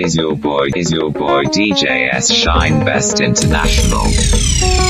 is your boy, is your boy DJS Shine Best International.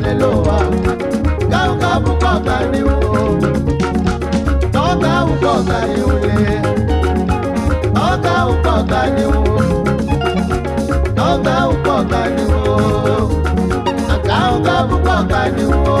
kelelo wa ka ka bu ko ka ni wo to ka u ko ka ni wo le to ka u ko ka ni wo to ka u ko ka ni wo ka ka bu ko ka ni wo.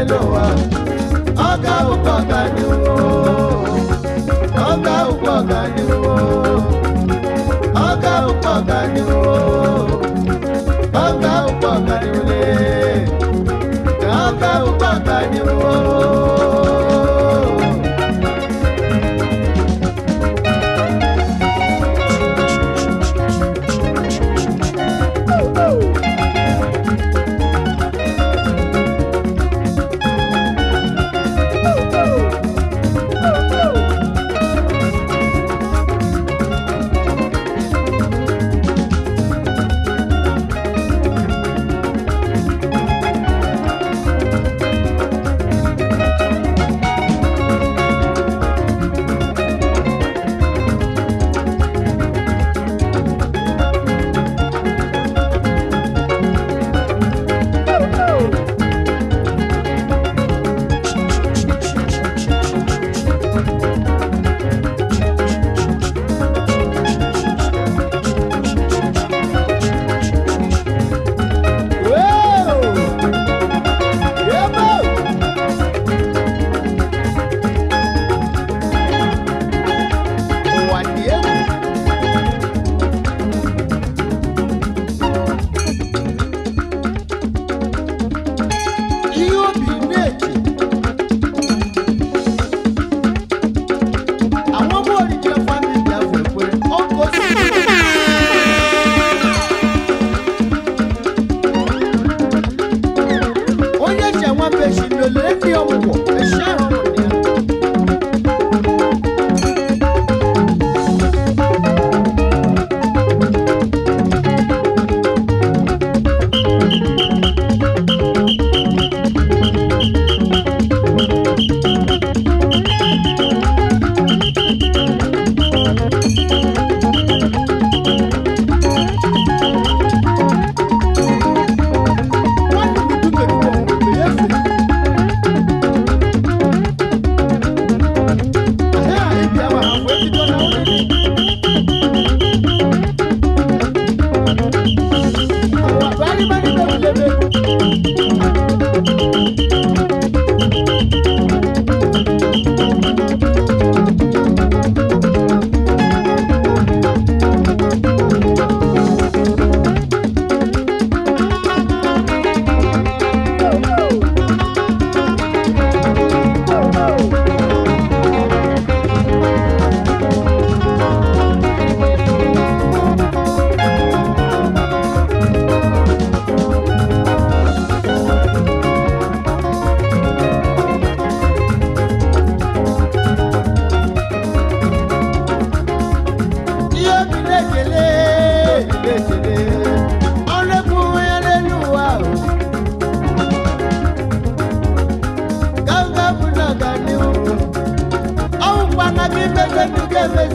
n'elu ụwa ọ ga-awụkwa ọganihu ọ ga-awụkwa ọganihu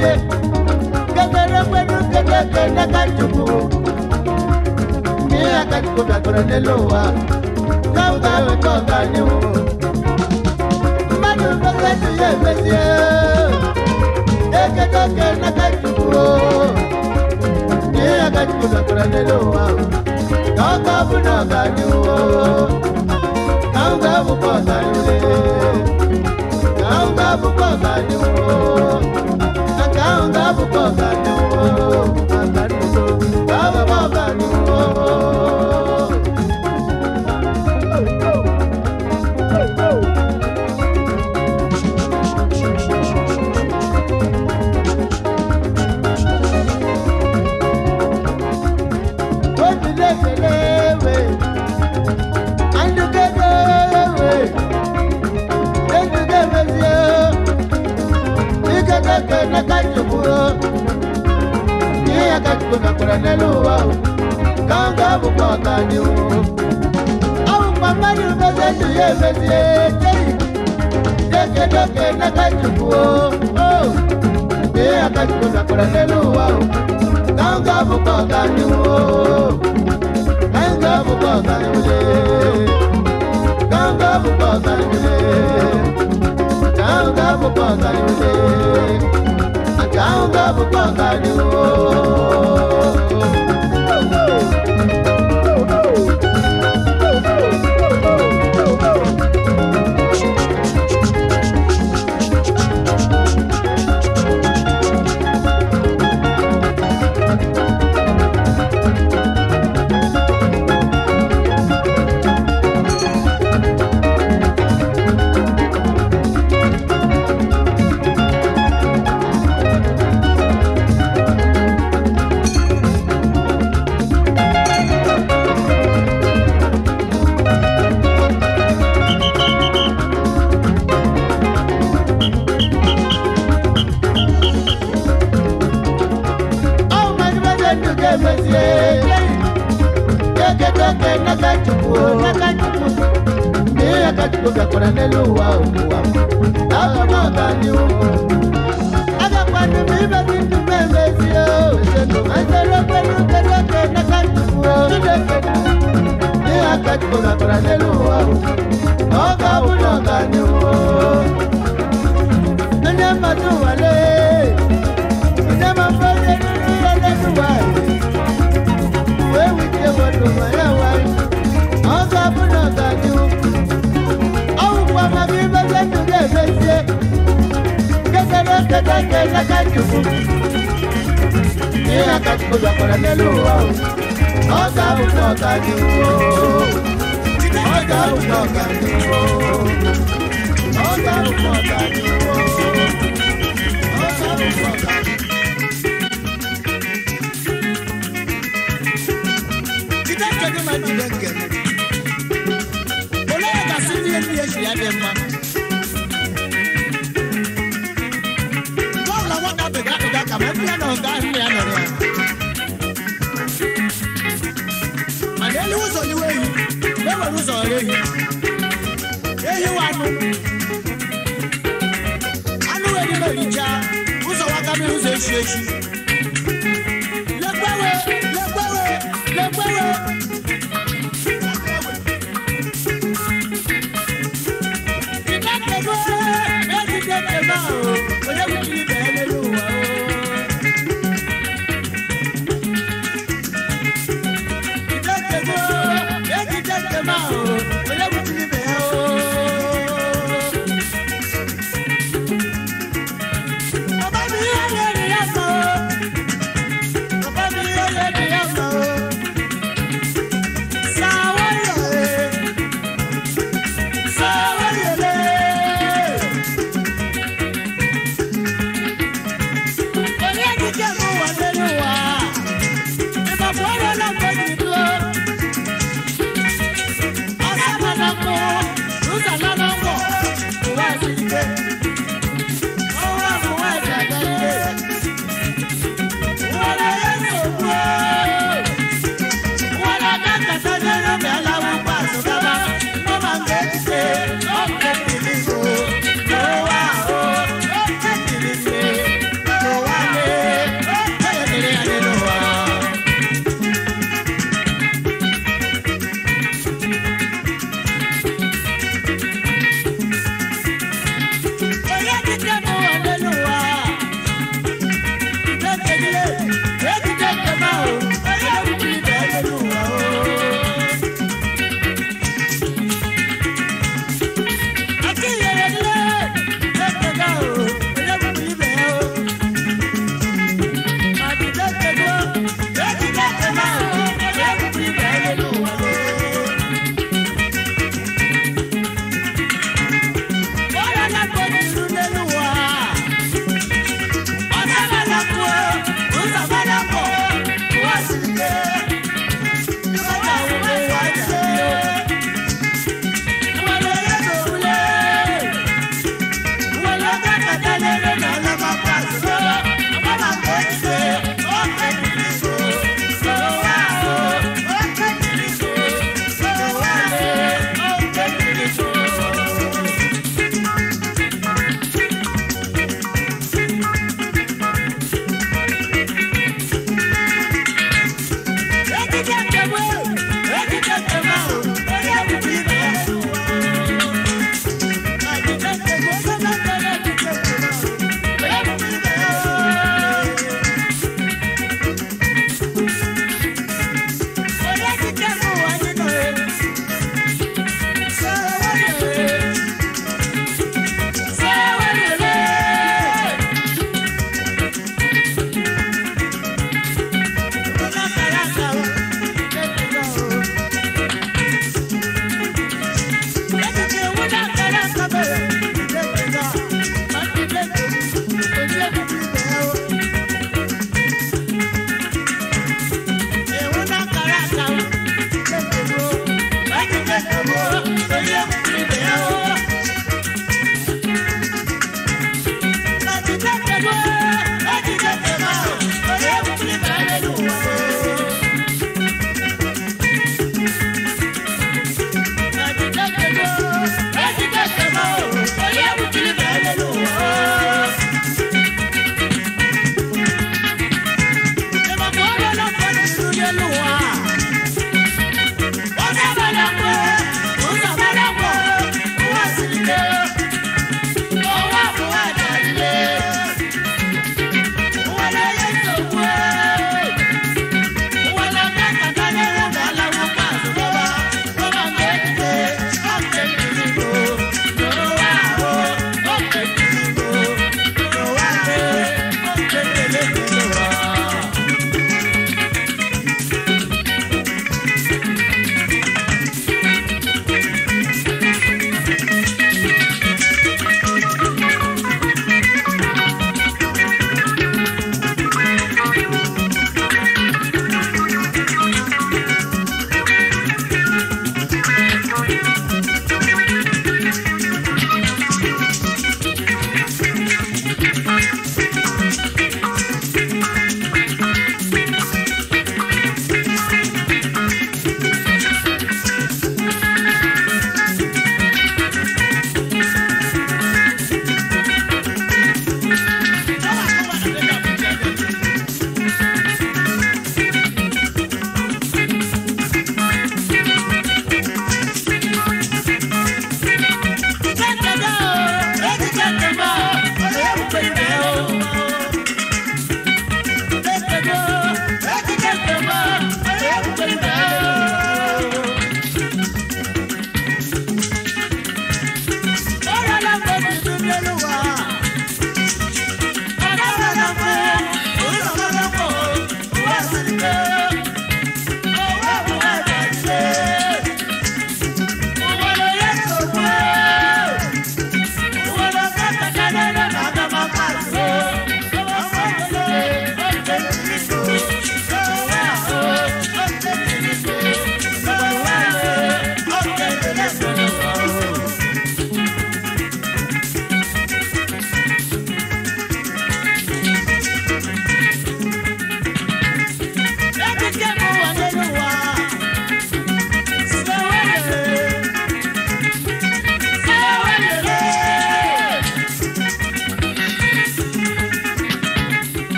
kwe Gagara kwenu kagaka nakachuku Mia kachikuta kura neloa Kauka wekoka nyu Manu kakatu yemesye Eke toke nakachuku Mia kachikuta kura neloa Kauka bunoka nyu Kauka bukosa nyu Kauka bukosa nyu kaonga bukoga nyongo ambariso baba baba nyongo kachukuo Nia kachukuka kuraneluwa Kanga bukwa kanyu Au mamari ubezetu yebezie Deke doke na kachukuo Nia kachukuka kuraneluwa Kanga bukwa kanyu Kanga bukwa kanyu Kanga bukwa kanyu Kanga bukwa kanyu Sound of a bungalow. ogakwara n'elu ụwa ụwa agha m ọbanye ụmụ agakwana m ibe gị ndụ m emezie ezere okwere ukere oke n'aka ntufu chineke ihe aka chukwu gakwara n'elu ụwa na ọ ga-abụ na ọganye ụwa onye mmadụ nwale onye mmadụ onye nri ya n'elu ụwa wee wutie mmadụ ma ya nwale kesie kesere keteke lakajuku ní akajuku lọkọlẹ nílùú wa o ọjà òkú ọjà ni o ọjà òkú ọjà ni o ọjà òkú ọjà ni o ọjà òkú ọjà ni o. Olóyè Kàsí ní ẹni ẹ̀ṣìn adé máa. arụzọre ehiwa anụ anụ wee richa ụzọ waka mmiri ụzọ echi echi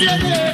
siete.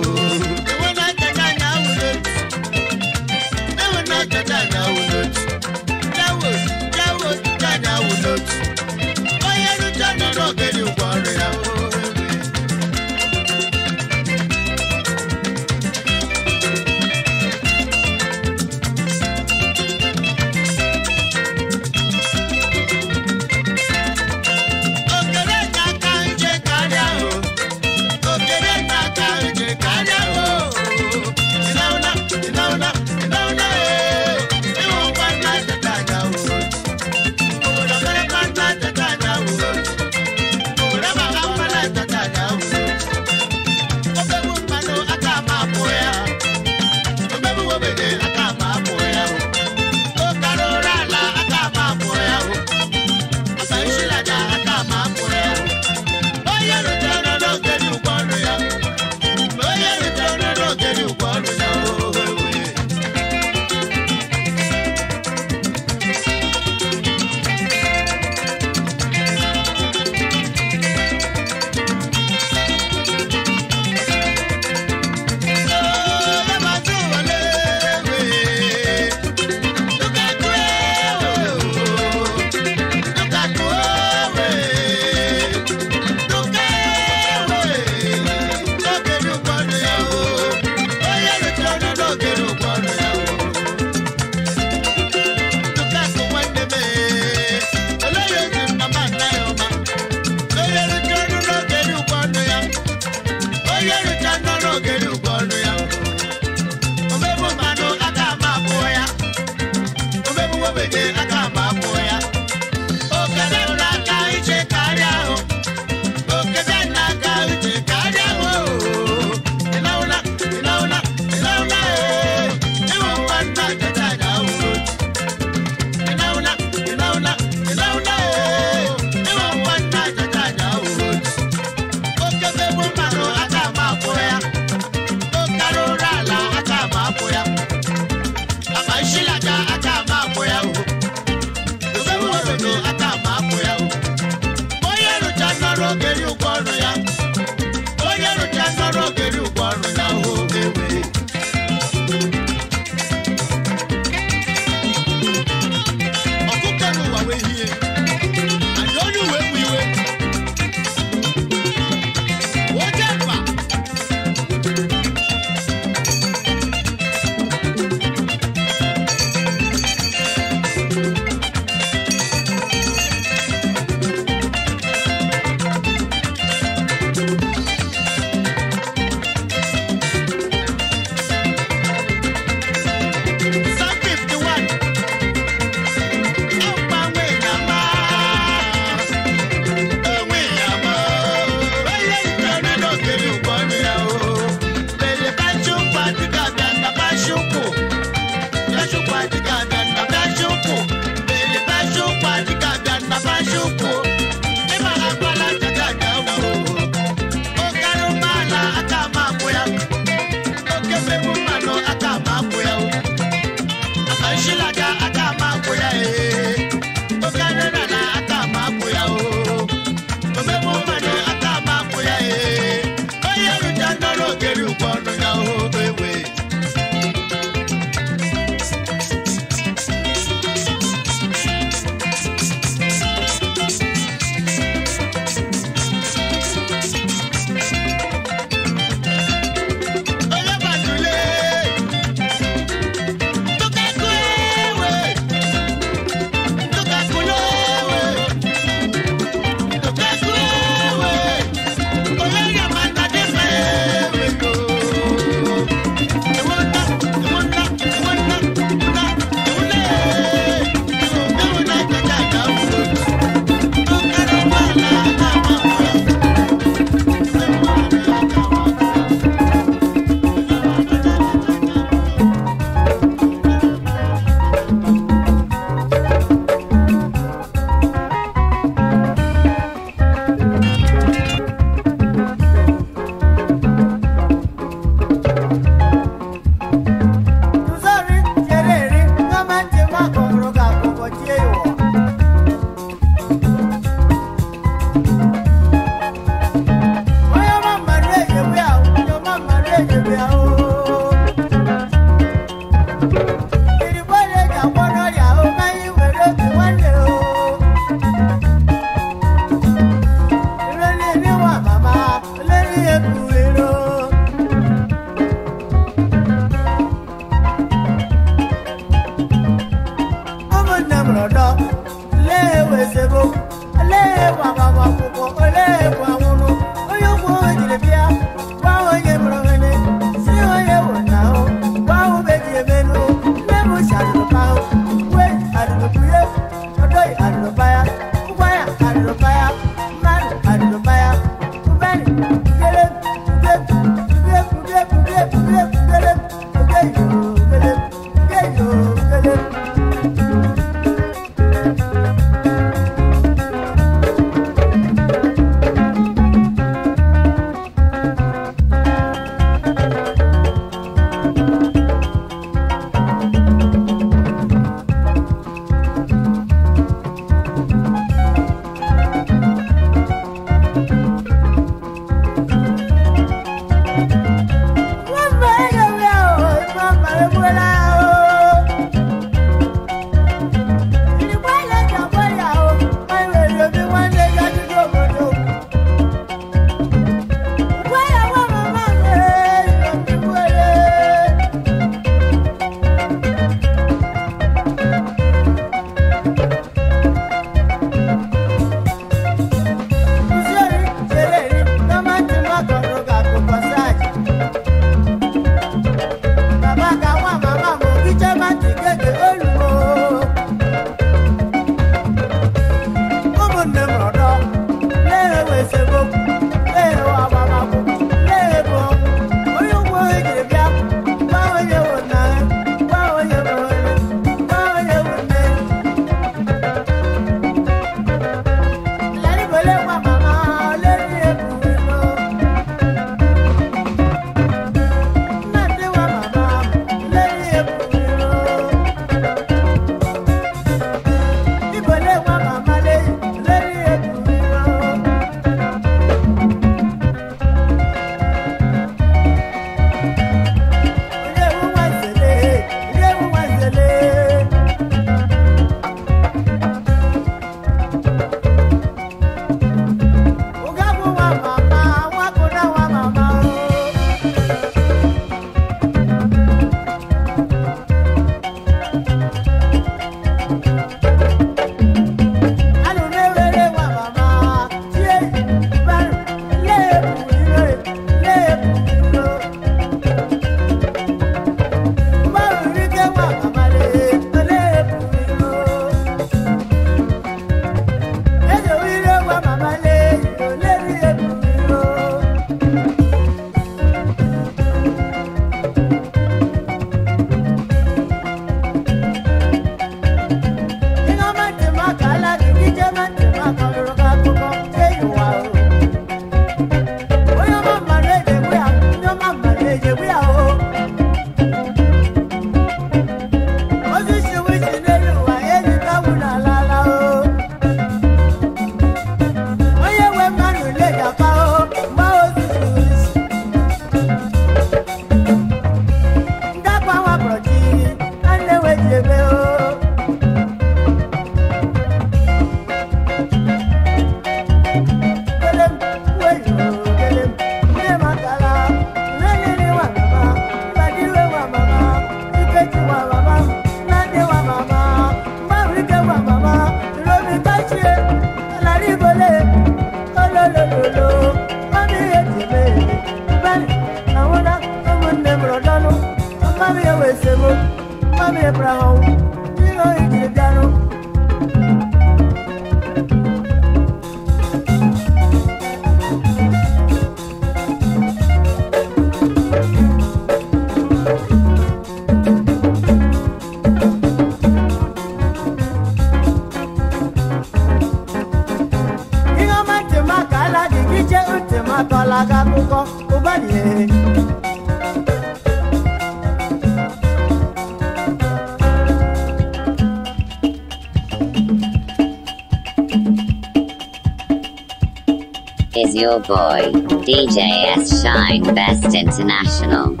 Your boy, DJS Shine Best International.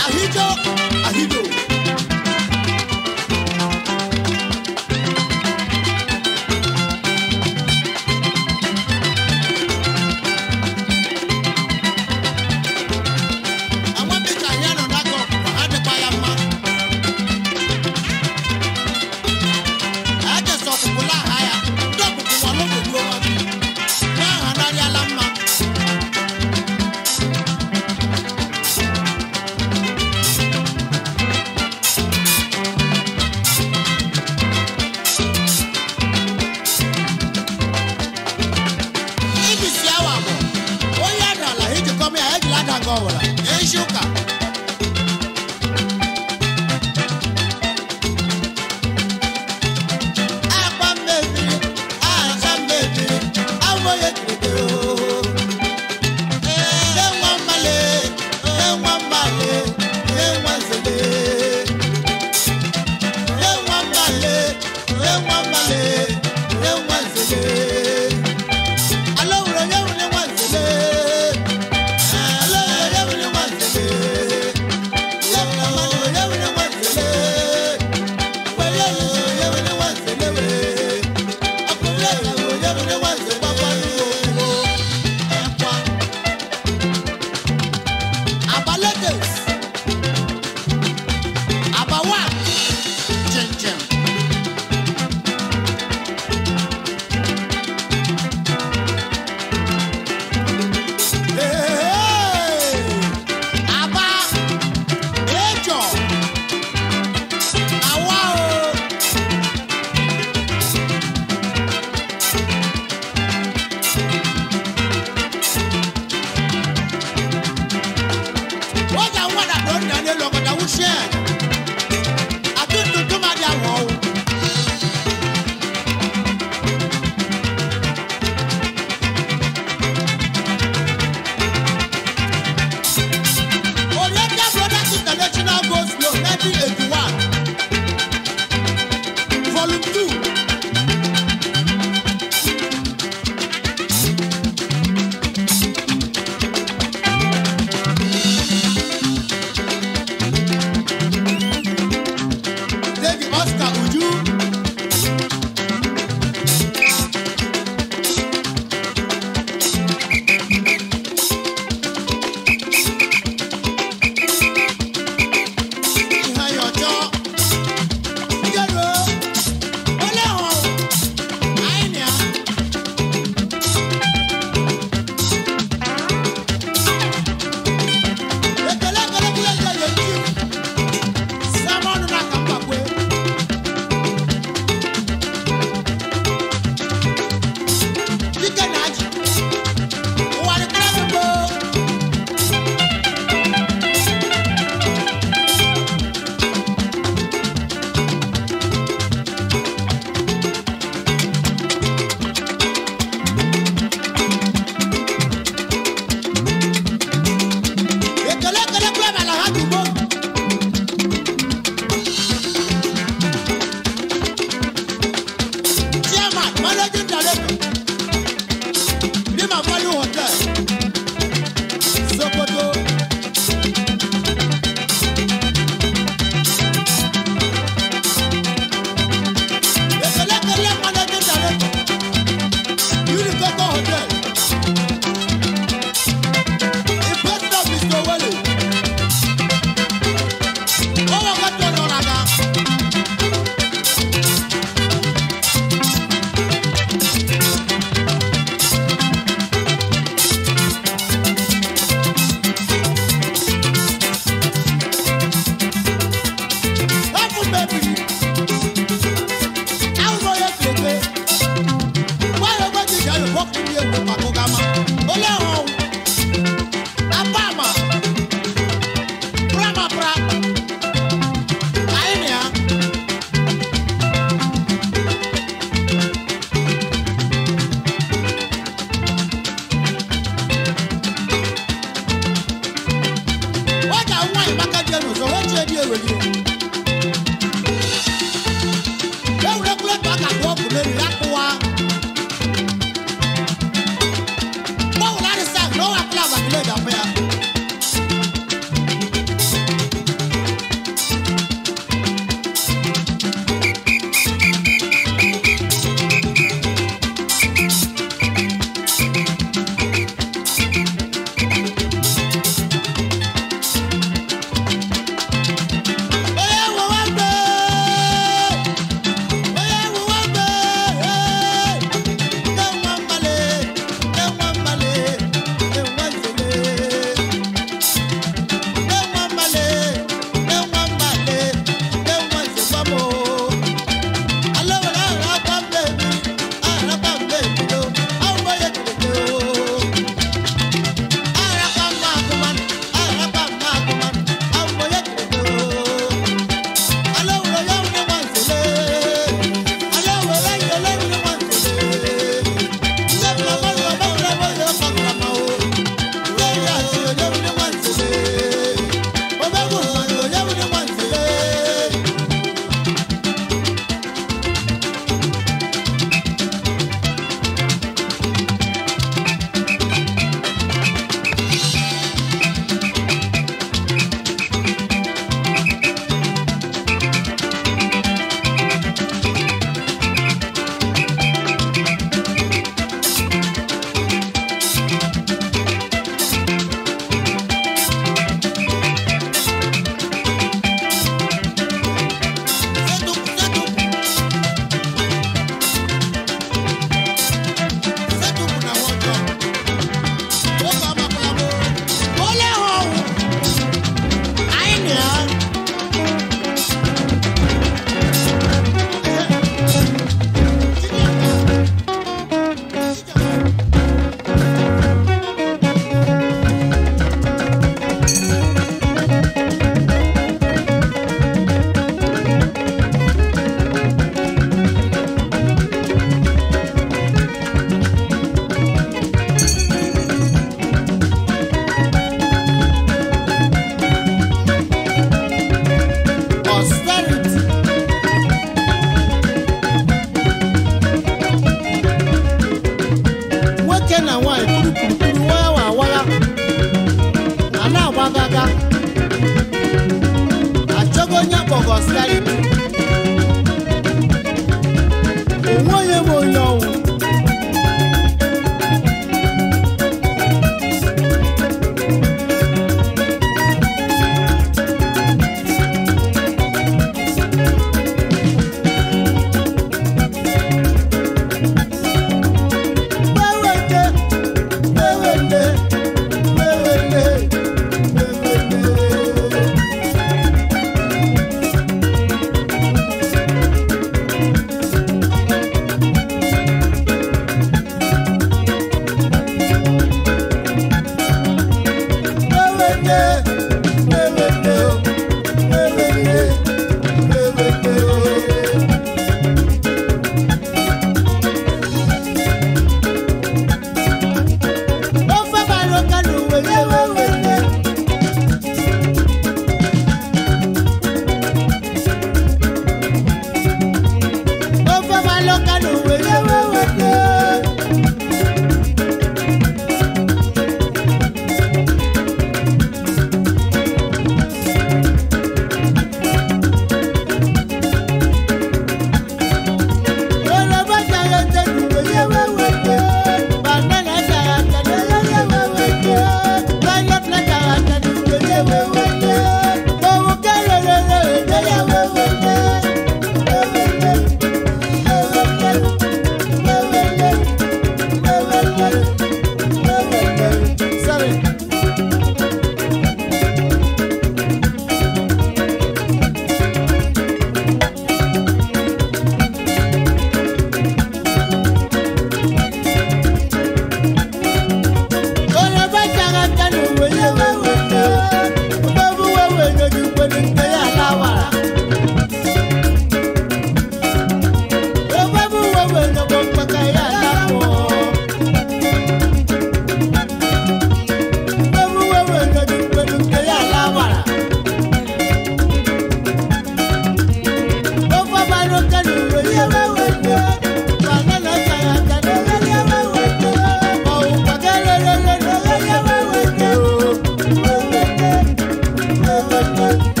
Thank you.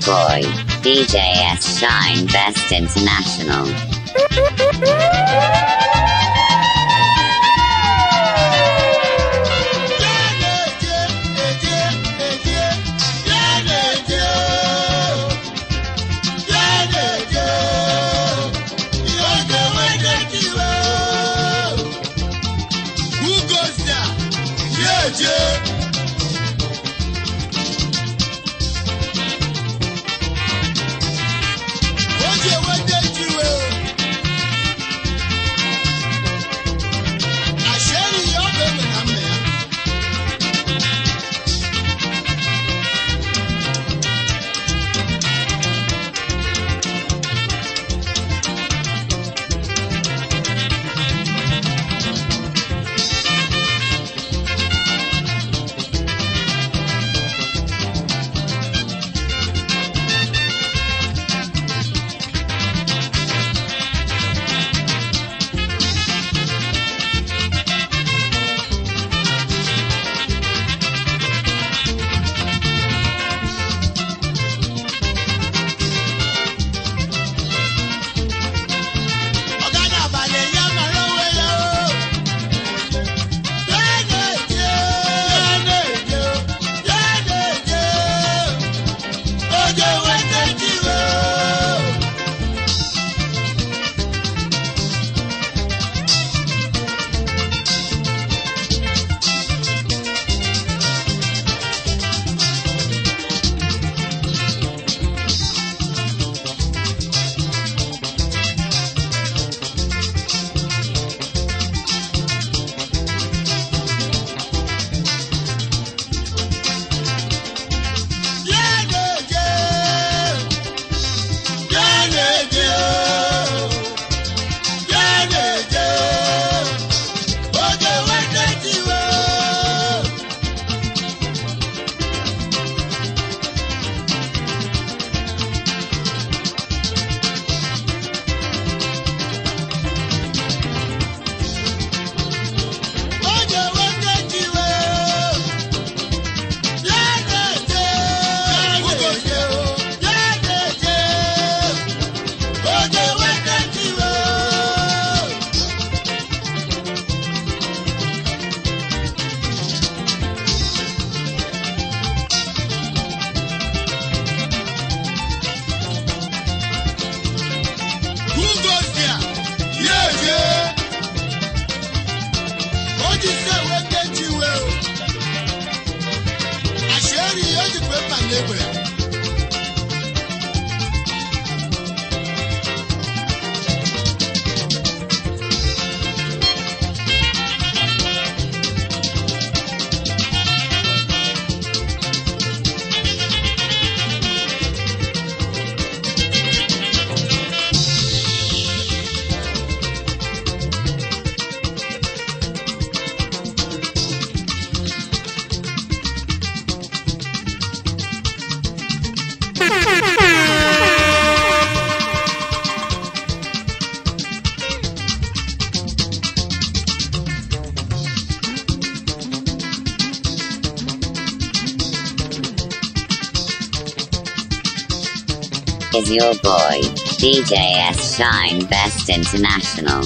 Boy, DJS Shine Best International. your boy, DJS Shine Best International.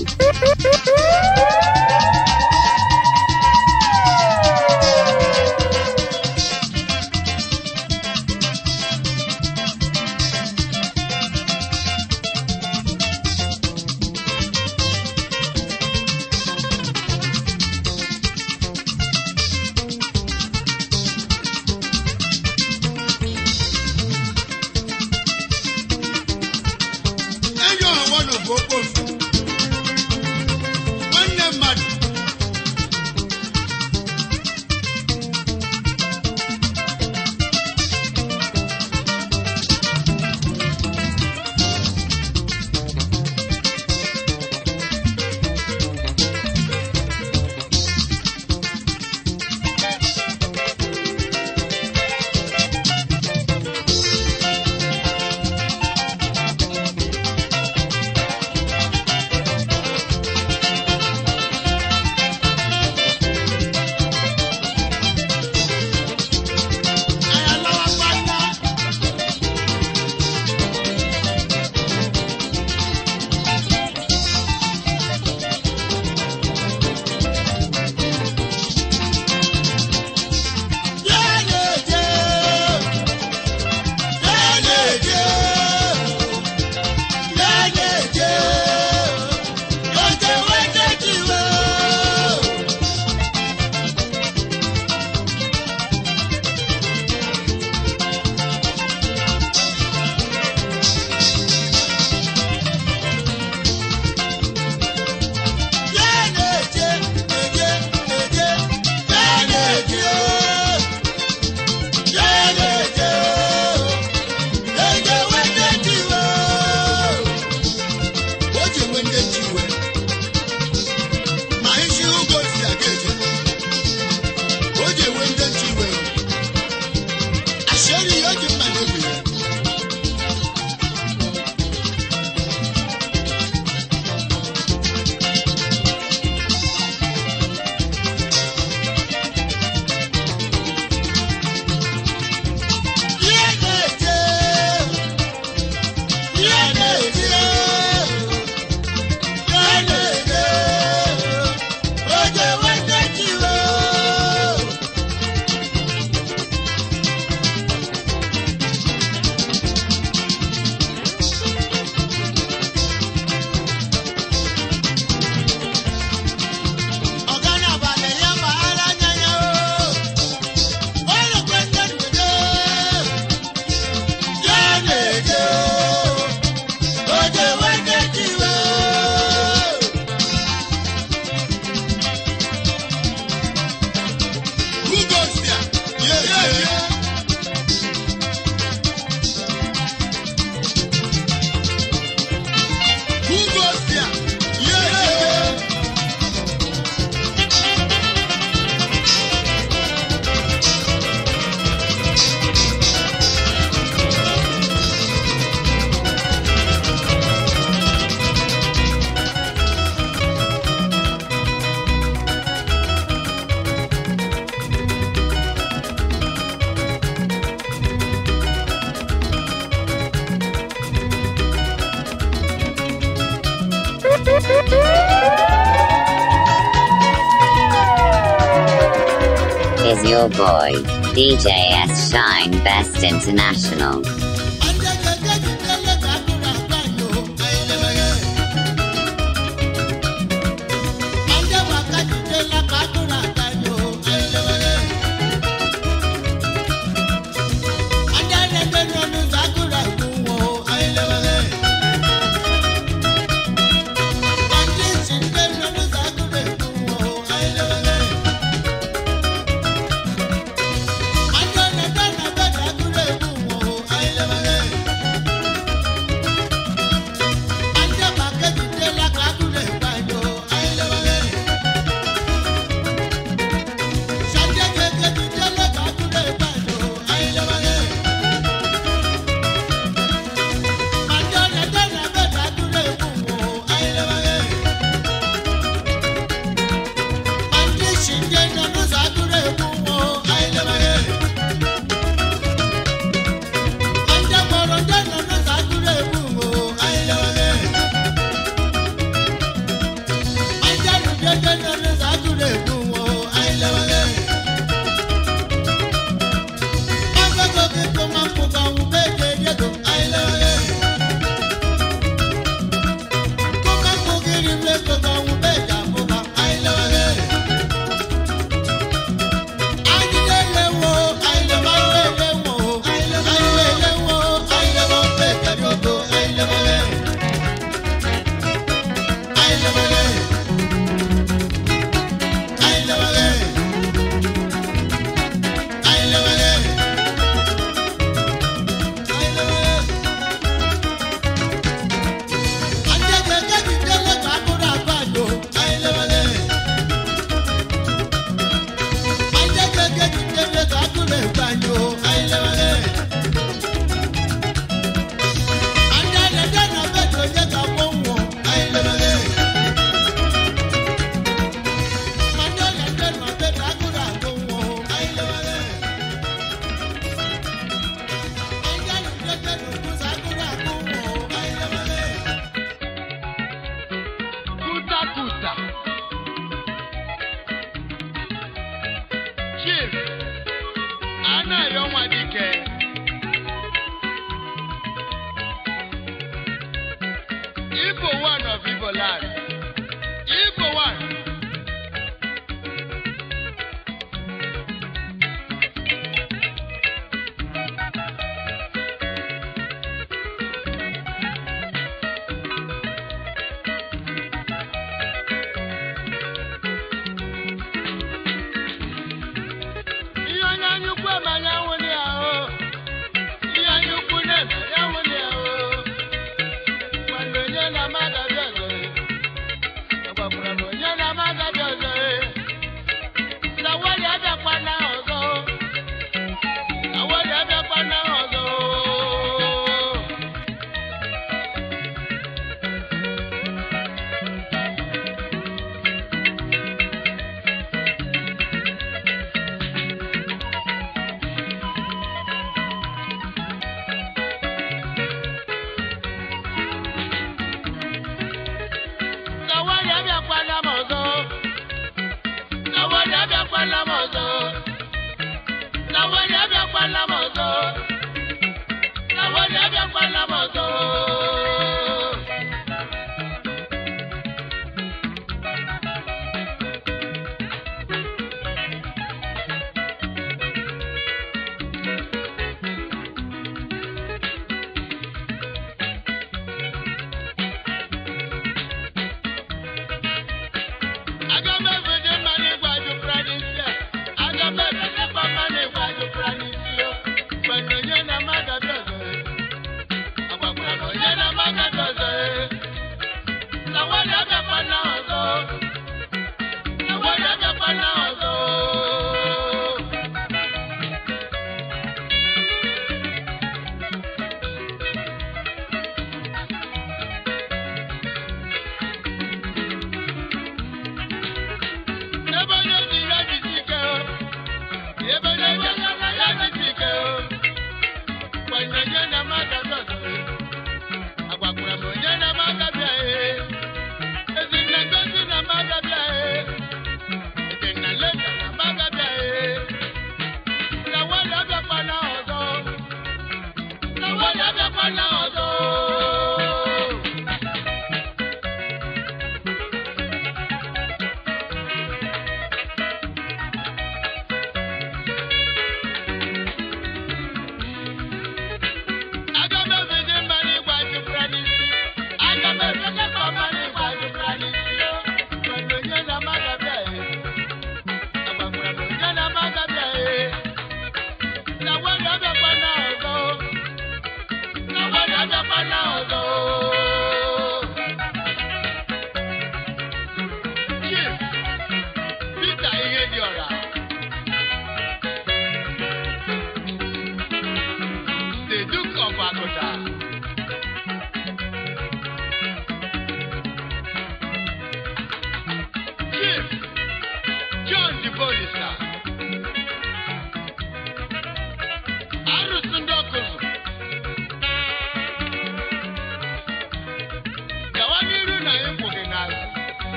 DJS Shine Best International.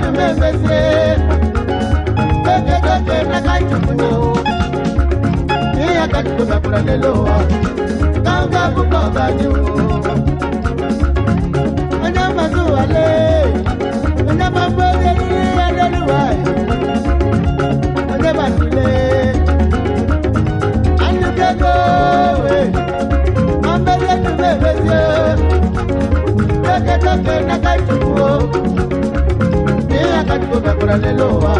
na me bese beke deke na kai tuno e ya ka tu na pura le lo ka ka bu ko ba ju ana ma zu ale kakibo bẹkura lelo wa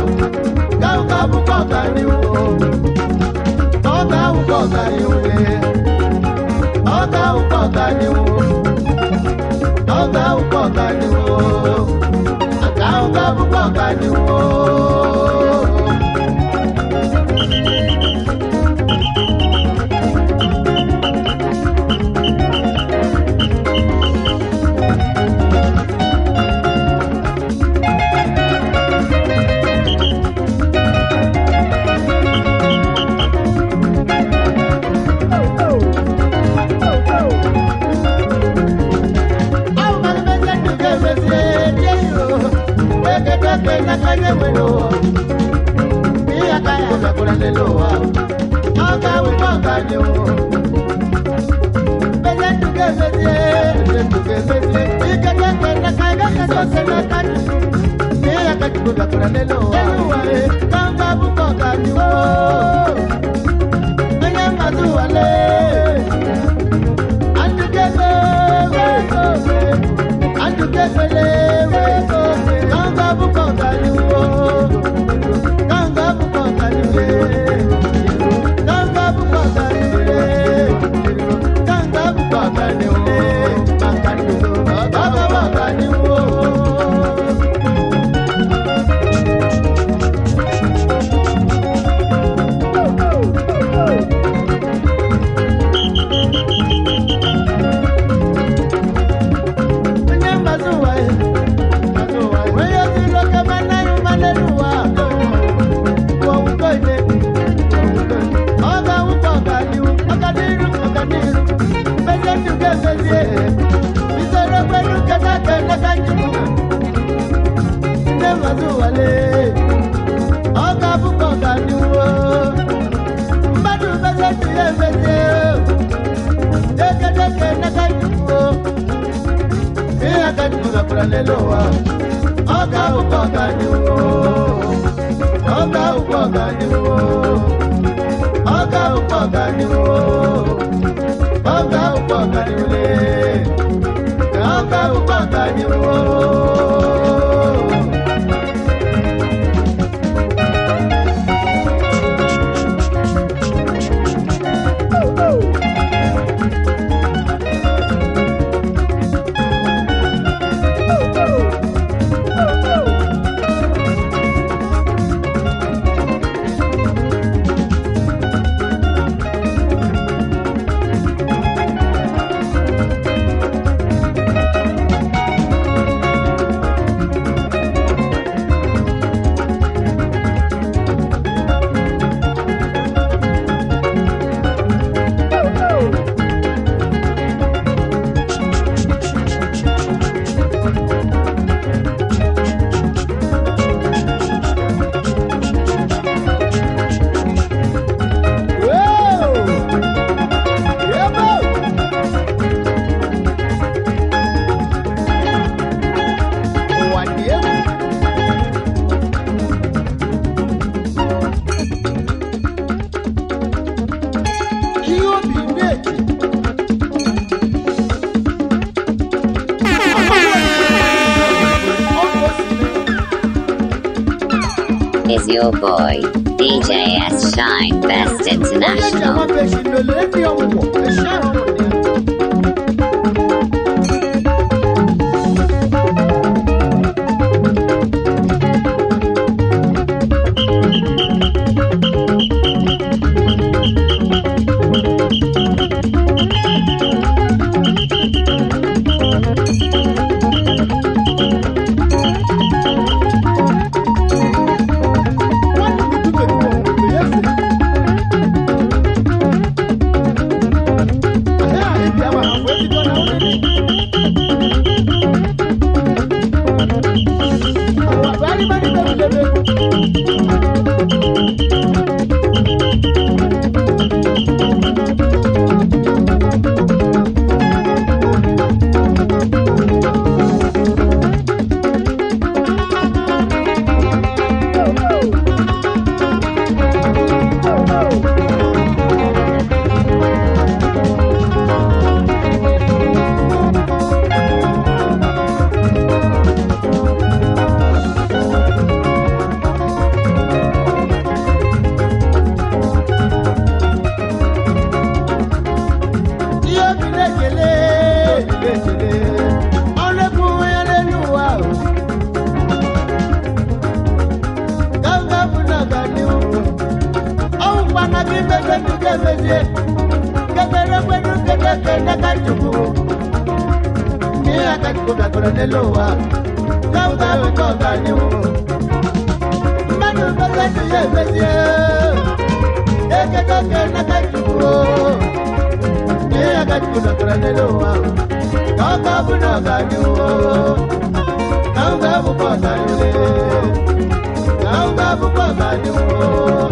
gawu gawu kọka ni wo ọka awu kọka ni wo ọka awu kọka ni wo ọka awu kọka ni wo aka awu gawu ni wo. wero bí aka yà sàkúrẹ́ lélo wa ọkà wípé ọkà ni Kangabu kọ̀ọ̀kan ni wo, kangabu kọ̀ọ̀kan ni wo. ọlẹ́lọ́wà ọ̀gá ògbọ́ ọ̀gá ni wò ganiwo, ògbọ́ ọ̀gá ni wò ọ̀gá ògbọ́ ọ̀gá ni wò ọ̀gá ògbọ́ ọ̀gá onye ji awa pesin na ole ndị mana kimbe kwetu kemeje kekere kwetu ketekenda kachuku mia kachukuka koronelowa kaukawekokaniu manumbe kwetu yemeje eketokenda kachuku mia kachukuka koronelowa kaukabunokaniu kaukabukokaniu kaukabukokaniu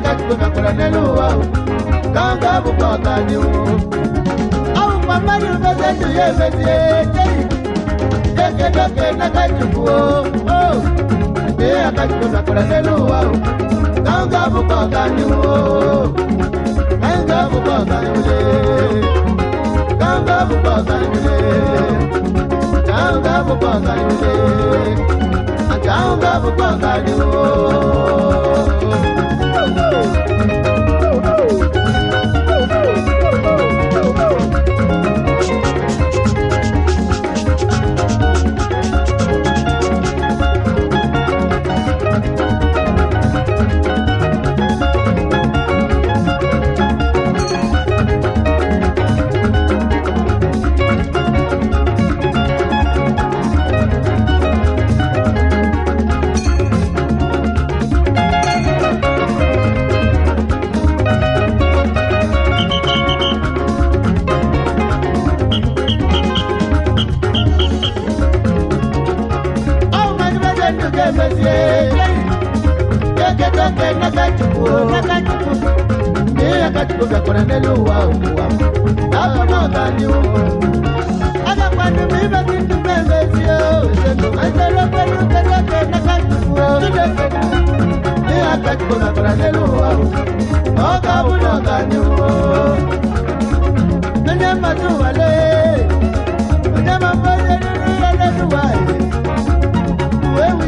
kakagbe kakura nelu wa kanga bukọ kani o. awu mama ni fẹsẹ ju ye fẹsẹ jẹyi keke dọke naka jubu o o ye kakagbe kakura Woo! oh, keketonge nakatuku nakatuku ni akatuku gakora neluwa uwa abamakaniu akakwanu mibakindu pembesio aiselopeluketoke nakatuku ni akatuku gakora neluwa okabunokaniu nenematuwale nemambozenunualeluwae wewe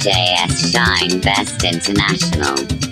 JS Shine Best International.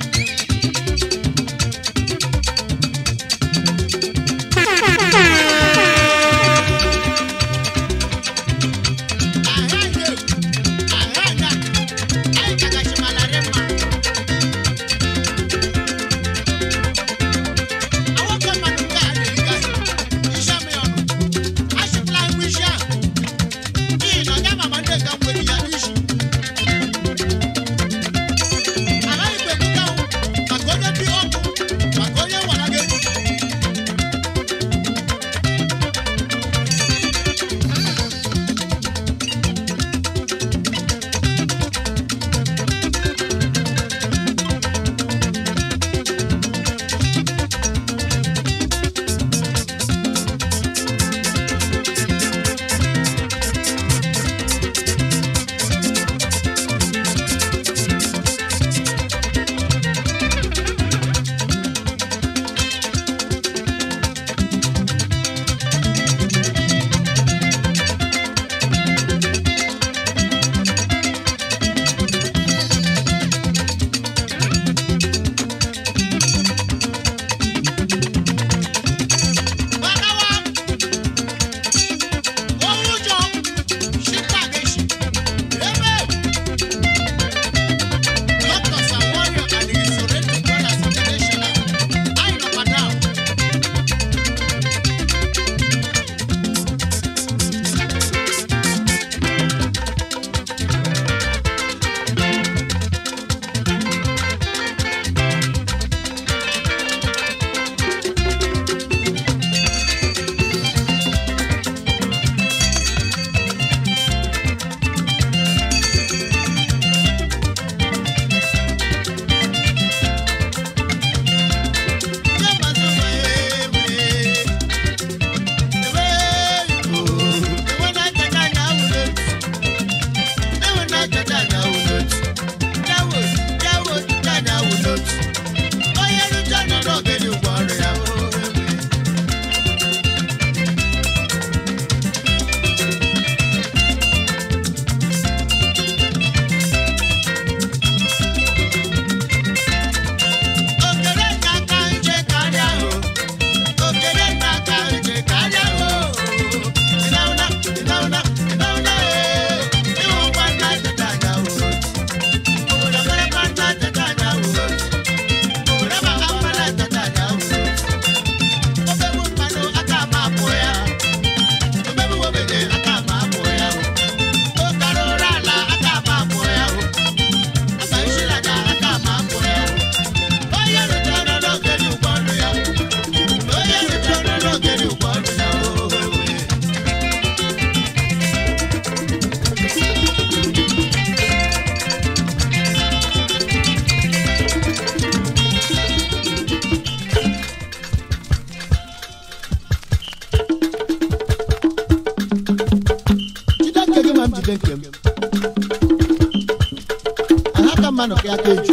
que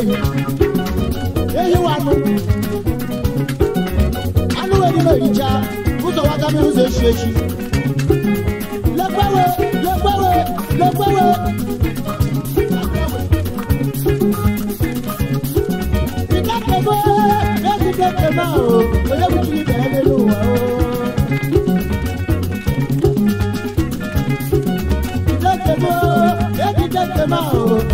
eyi eyi wanu anuwe ni mo yija kuso wata mi nse esu esu lekwewe lekwewe lekwewe. Ìdákẹ́gbẹ́ lẹ́sìn kẹ́kẹ́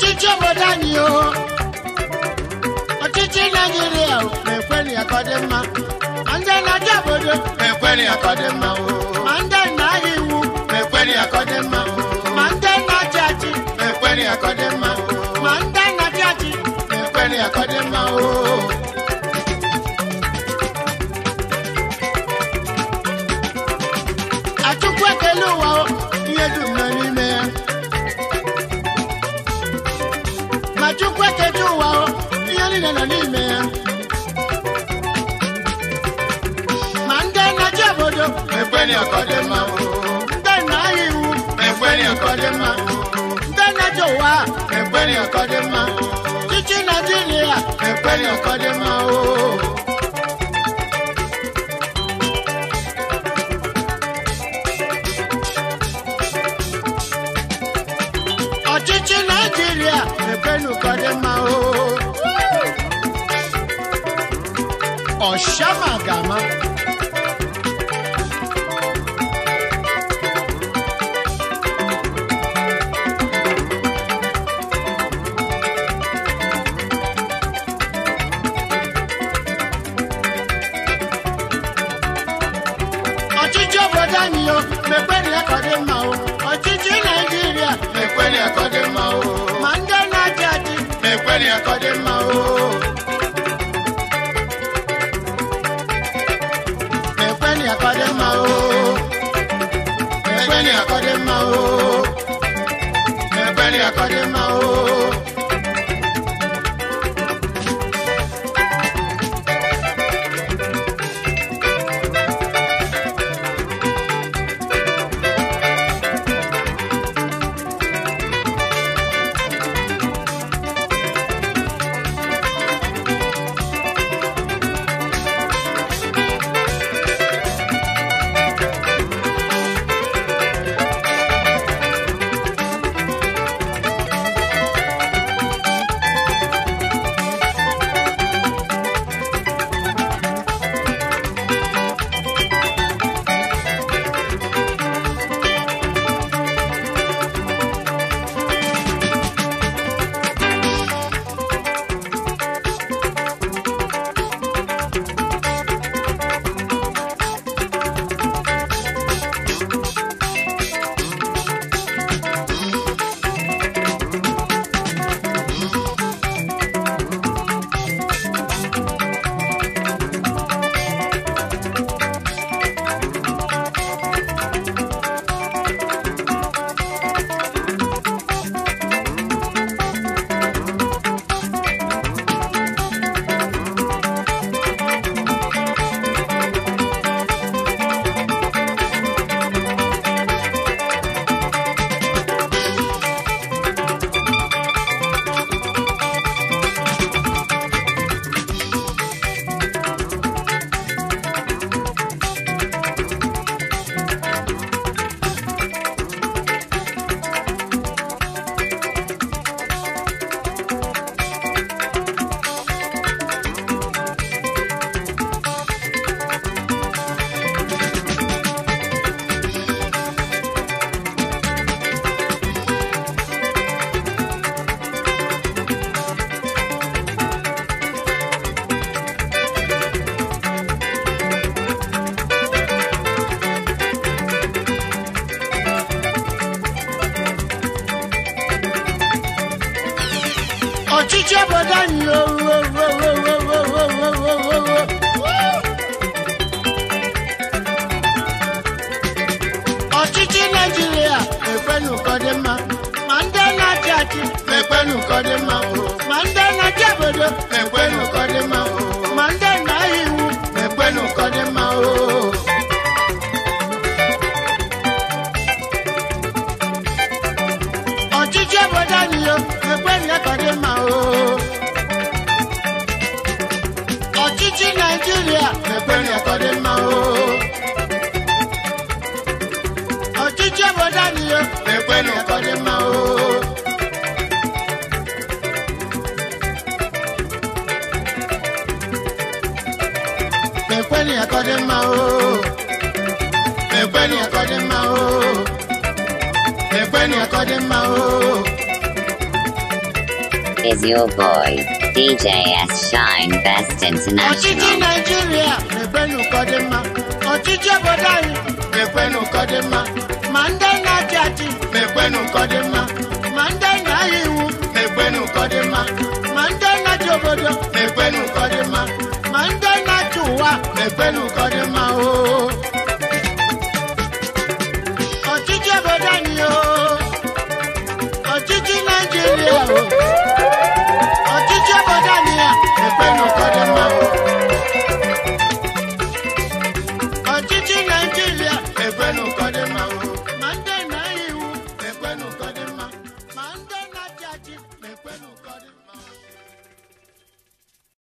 ọchịchị obodo anyị o ọchịchị naijiria na-ekweli akọdị mma ndị na-aja obodo na-ekweli akọdị mma o ndị na-ahịa iwu na-ekweli akọdị mma o Cause them